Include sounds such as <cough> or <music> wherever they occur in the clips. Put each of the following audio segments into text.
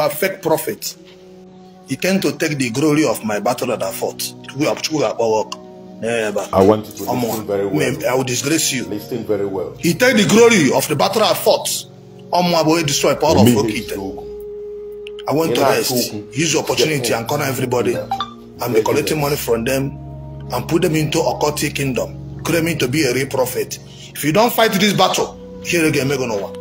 you are fake prophet. You came to take the glory of my battle that I fought. We have work. Never. I want you to listen very well. I will disgrace you. Listen very well. He take the glory of the battle I fought. I will destroy power of Okite. I want to rest. Use the opportunity and corner everybody. I'm collecting money from them and put them into occultic kingdom. Claiming to be a real prophet. If you don't fight this battle, here again, make no one.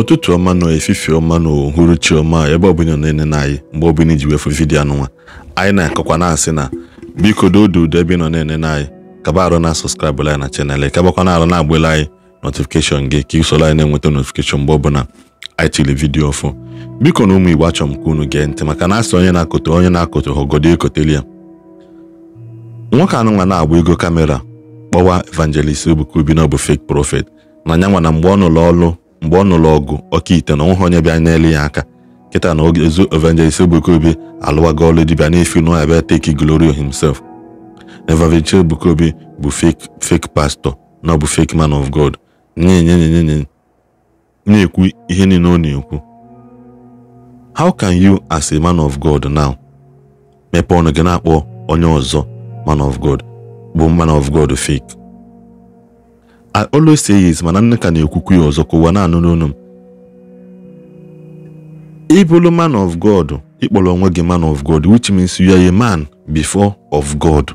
ụtụtụ ọma nọ efifi ọma na uhuruchi ọma ebe ọbụla na anyị mgbe ọ bụla iji wefu vidiyo anụnwa anyị na-akọkwa na-asị na biko dodo udo ebe nọ na-enene anyị kaba arụ na sọskraịbụ anyị na chanel kabakwa na arụ na agbele anyị notifikeshọn gị ka isoro anyị na-enweta notifikeshọn mgbe ọbụla anyị tiri vidiyo ọfụ biko na ụmụ igbo achọ m ka unu gee ntị maka na asị onye na-akụtụ onye na-akụtụ ha ogodo ya nwoke anụnwa na-agba ego kamera kpọwa evangelist Ebuka Obi na ọ bụ fek profet na nyanwa na mgbe ọ nụrụ ọlụ mgbe ọ nụrụ ọgụ ite na onweghị onye bịa nyere ya aka kịta na ogezu evangelist Ebuka Obi alụwago ọlụ dibịa n'ifi nụọ abịa take glory himself evangelist Ebuka Obi bụ fake fake pastor na ọ bụ fake man of God nyenyenyenyenye na-ekwu ihe niile ọ na-ekwu how can you as a man of God now mepe ọnụ gị na-akpọ onye ọzọ man of God bụ man of God fake I always say yes mana nne ka na-ekwukwu ya ọzọ ka ụwa na n'onu m ịbụrụ man of God ịkpọrọ onwe gị man of God which means you are a man before of God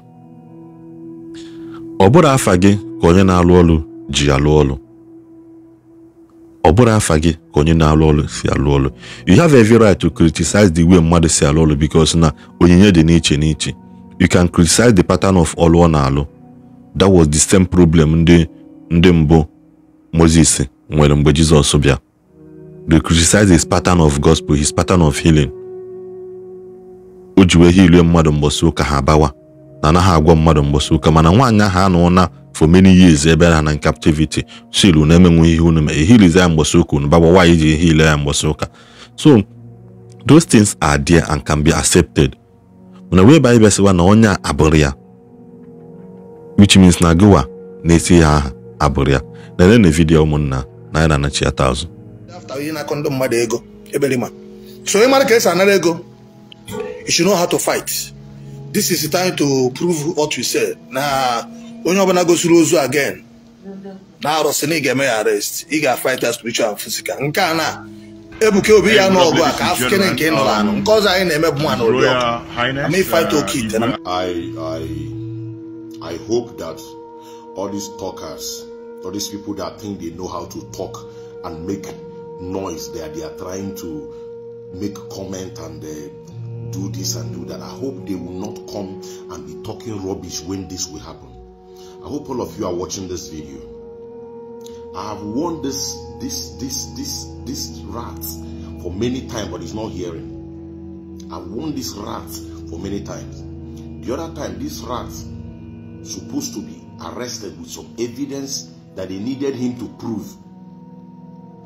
ọ bụrụ afa gị ka onye na-alụ ọlụ ji alụ ọlụ ọ bụrụ afa gị ka onye na-alụ ọlụ si alụ ọlụ you have every right to criticize the way mmadụ si alụ ọlụ because na onyinye dị n'iche n'iche you can criticize the pattern of ọrụ ọ na-alụ that was the same problem ndị ndị mbụ Moses nwere mgbe Jizọs bịa they criticize his pattern of gospel his pattern of healing o ji wee mmadụ mgbọsị ụka ha abawa na anaghị agwa mmadụ mgbọsị ụka mana nwaanyị ahụ anụọna for many years ebe ha na in captivity sil na emenwe ihe unu mee ehilize ya mgbọsị ụka unu bagba nwaanyị ji ehile ya mgbọsị ụka so those things are there and can be accepted mana wee ba na onye abụrụ ya which means na gowa na-esi ya aha abụrụ ya na-enene vidiyo ụmụnna na ya na-anachiata azụ ihe na-akọ ndị mmadụ ego eberima so ị mara ka esi anara ego you should know how to fight this is the time to prove what you say na onye ọbụla gosiri ozu again na arụsị na ị ga-eme ya arrest ị ga-fight as spiritual and physical nke a na ebuka obi ya n'ọgụ a ka afụkene nke nọrọ anụ um, nke ọzọ anyị na-eme bụ nwa n'ụlọ ọkụ ama ịfight uh, oke ite na I hope that all these talkers, all these people that think they know how to talk and make noise there, they are trying to make comment and uh, do this and do that. I hope they will not come and be talking rubbish when this will happen. I hope all of you are watching this video. I have warned this this this this this rat for many times, but he's not hearing. I have warned this rat for many times. The other time, this rat supposed to be arrested with some evidence that they needed him to prove.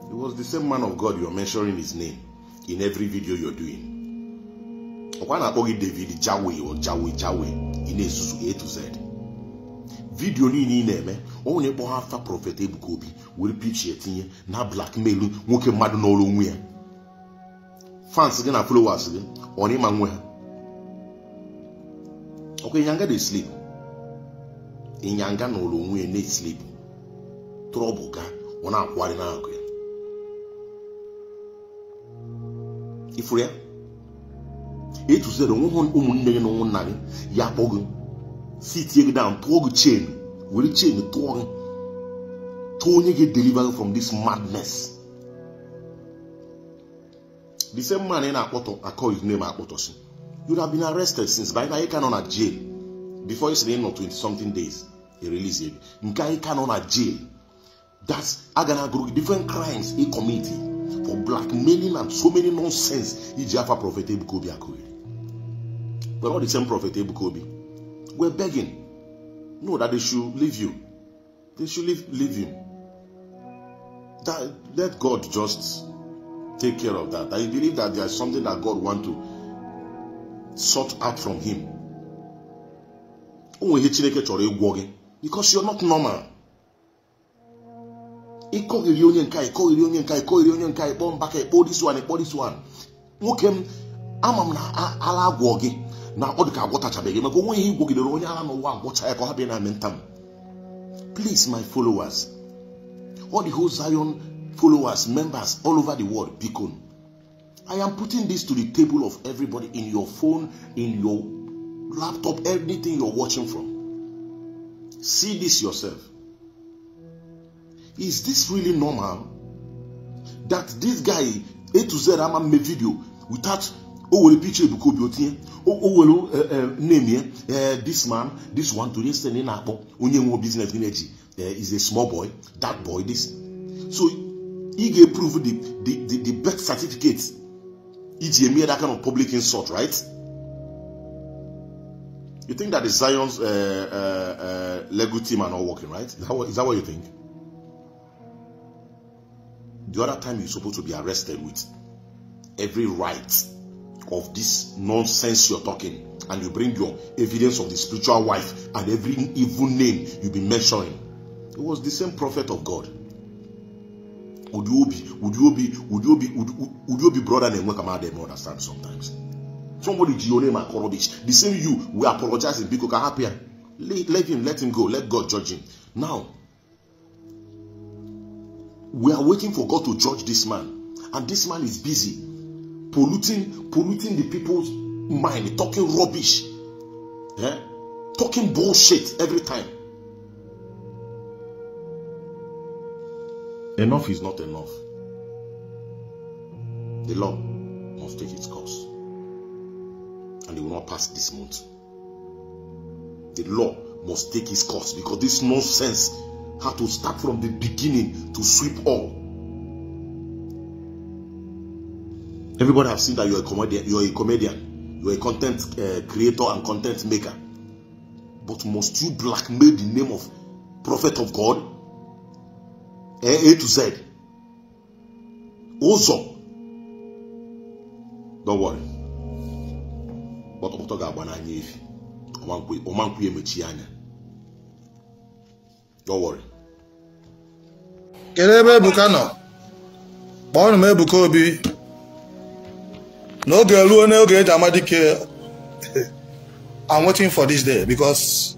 It was the same man of God you're mentioning his name in every video you're doing. ọkwa na-akpọ gị David Jawe or Jawe Jawe ị na-ezuzu A to Z vidio niile ị na-eme ọ kpọha afa prọfet Ebuka Obi were etinye na blackmail nwoke mmadụ n'ọrụ onwe ya fans gị na followers gị ọ ịma nwe ha ọkwa dey sleep ịnyanga na ụlọ onwe na-esilipụ trọbụ ga ọ na-akwụgharị n'akụ ya ifuru ya etuzere onwe ụmụnne gị na ụmụnna gị ya kpọọ gị sitie gị down tụọ gị chen were chen tụọ gị tụọ onye gị deliver from this madness the same man ị na-akpọtọ akọ his name akpọtọsi you have been arrested since by na ị ka nọ na jail before you sị na ị 20 something days he released him. ka nọ na jail that a group na different crimes he committed for blackmailing and so many nonsense He afa prọfet Ebuka akuri. but all the same prophet Ebuka We're begging no that they should leave you they should leave, leave him that let God just take care of that I believe that there is something that God want to sort out from him o nwere Chineke chọrọ ịgwọ because you're not normal ịkọghịrị onye nke ịkọghịrị onye nke ịkọghịrị onye nke ịkpọ mba ka this one pull this one nwoke m ama na ala agwọ na odika dị ka Mako maka onwe ihe igwogidere onye ala n'ụwa agwọcha ya ka na amị please my followers all the whole zion followers members all over the world bikon i am putting this to the table of everybody in your phone in your laptop everything you're watching from See this yourself. Is this really normal that this guy A to Z ama mme video without o oh, were picture ebuka obi otinye o name ya uh, this man this one to this thing na-akpọ onye nwe business gị na-eji uh, is a small boy that boy this so he ga-eprove the the the birth certificate iji eme that kind of public insult right. You think that the Zion's uh, uh, uh, Lego team are not working, right? Is that, what, is that what you think? The other time you're supposed to be arrested with every right of this nonsense you're talking, and you bring your evidence of the spiritual wife and every evil name you've been mentioning. It was the same prophet of God. Would you be, would you be, would you be, would, would you be brother than Wekamade? I don't understand sometimes. Somebody Giorema Korobic. The same you we apologize apologizing because happier. Let, let him, let him go. Let God judge him. Now, we are waiting for God to judge this man. And this man is busy polluting, polluting the people's mind, talking rubbish, yeah? talking bullshit every time. Enough is not enough. The law must take its course and they will not pass this month. The law must take its course because this nonsense had to start from the beginning to sweep all. Everybody have seen that you're a comedian, you're a comedian, you're a content uh, creator and content maker. But must you blackmail the name of prophet of God? A, eh, A to Z. Also, don't worry. gbọtọgbọtọ ga-agba n'anya efi ọmankwụ ya emechi anya dọwọrị kedu ebe ebuka nọ kpọọnụ m ebuka obi n'oge ruo n'oge eji ama dike <laughs> i'm waiting for this day because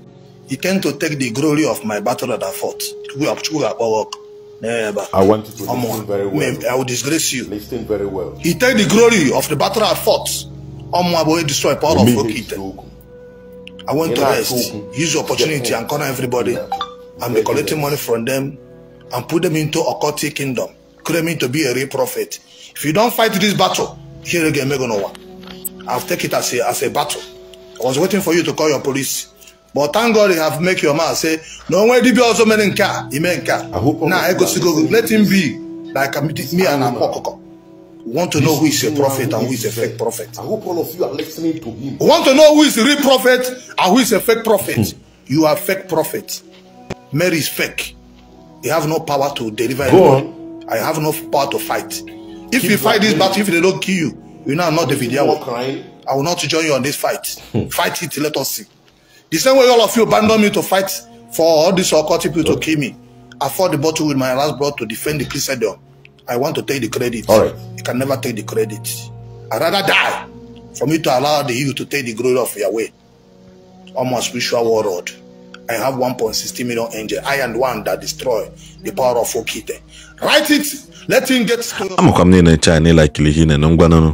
he came to take the glory of my battle that i fought chukwu ga-akpọwa ọkụ Never. I want to Omo, listen very well. I disgrace you. He take the glory of the battle I fought ọmọ àbòyè e destroy power of okite i want to rest use the opportunity and corner everybody and be collecting money from them and put them into occultic kingdom claiming to be a real prophet if you don fight this battle here again make una one i've take it as a as a battle i was waiting for you to call your police but thank god you have make your mouth say na onwe dibia ọzọ mere nke a ime nke a na egosigo let him be like me and akwa ọkụkọ want to know who is a prophet and who is a fake prophet. I hope all of you are listening to him. want to know who is a real prophet and who is a fake prophet. you are fake prophet. Mary is fake. You have no power to deliver Go on. I have no power to fight. If Keep you fight this battle, if they don't kill you, you know I'm not the video. I will not join you on this fight. Hmm. fight it, let us see. The same way all of you abandon me to fight for all these occult people okay. to kill me. I fought the battle with my last blood to defend the Christendom. I want to take the credit. All right. You can never take the credit. I'd rather die for me to allow the you to take the glory of Yahweh on my spiritual world. I have 1.60 million angels. I am one that destroy the power of Okite. Write it. Let him get amụkwa m niile nche anyị laikiri ihe na ngwanụnụ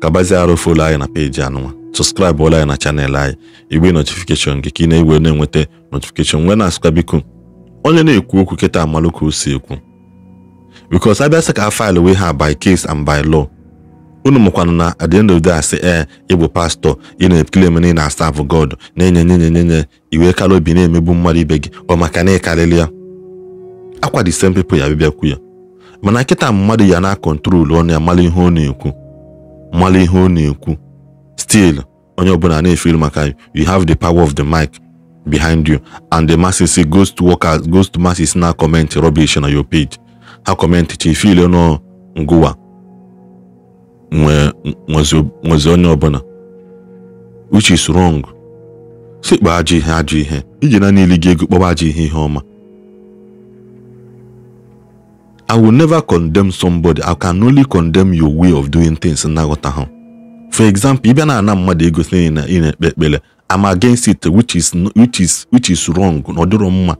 kabazie arụ folo anyị na peji anụnwa sọskraịbụ ụlọ anyị na chanel anyị igbe notifikeshọn gị ka ị na-egwe na-enweta notifikeshọn nwee na-asụkwa biko onye na-ekwu okwu kịta amalụka o si ekwu because abịa sị ka a faịlụ ha by case and by law unu mụkwana na at the end of the day pastọ eh, ị na-ekele na ị na god na-enye nye nye nye nye iwe obi na-emegbu mmadụ ibe gị ọ maka na ịkarịrị ya akwa the same people ya bịakwu ya mana nkịta mmadụ ya na-akọntrolu ọnụ ya mara ihe ọ na-ekwu mara ihe ọ na-ekwu still onye ọbụla na-efeel maka you have the power of the mic behind you and the masses goes to workers goes to masses na comment rubbish na your page hakọmentịcha ife ile n'ngụwa nwezi onye ọbụla which is wrong sikpa ajọ ihe ajọ ihe iji na niile ego kpọba ajọ ihe ihe ọma I will never condemn somebody I can only condemn your way of doing things nnaghọta ha for example ibe bịa na ana mmadụ ego si na ị na-ekpe ekpere I'm against it which is which is which is wrong na ọ dịrọ mma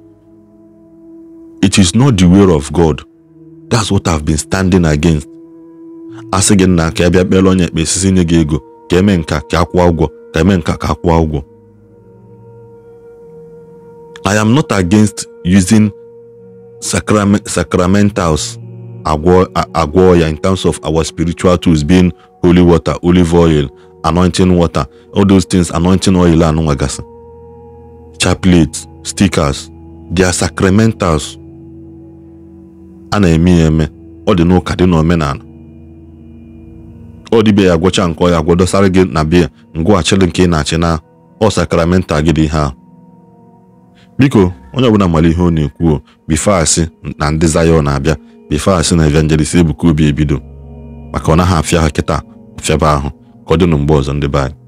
it is not the way of God that's what I've been standing against asị gị nna ka ị bịa kpere onye ekpe nye gị ego ka eme nka ka akwụọ ụgwọ ka eme nka ka akwụọ ụgwọ I am not against using sacramentals agwọ ya in terms of our spiritual tools being holy water olive oil anointing water all those things anointing oil anụnwagasị chaplets stickers they are sacramentals a na-eme ya eme ọ dị n'ụka dị n'omenala ọ dịbe ya gwọcha nke ọya gwọ dosara gị na bịa ngwụghachili nke ị na-achị na ọ sakramenta gị dị ihe ahụ biko onye ọbụla mara ihe ọ na-ekwuo bifeasị na ndị zayọ na-abịa bifeasị na evangelist ebuka obi ebido maka ọ naghị afịa ha kịta ọfịaba ahụ ka ọ dị na ọzọ ndị be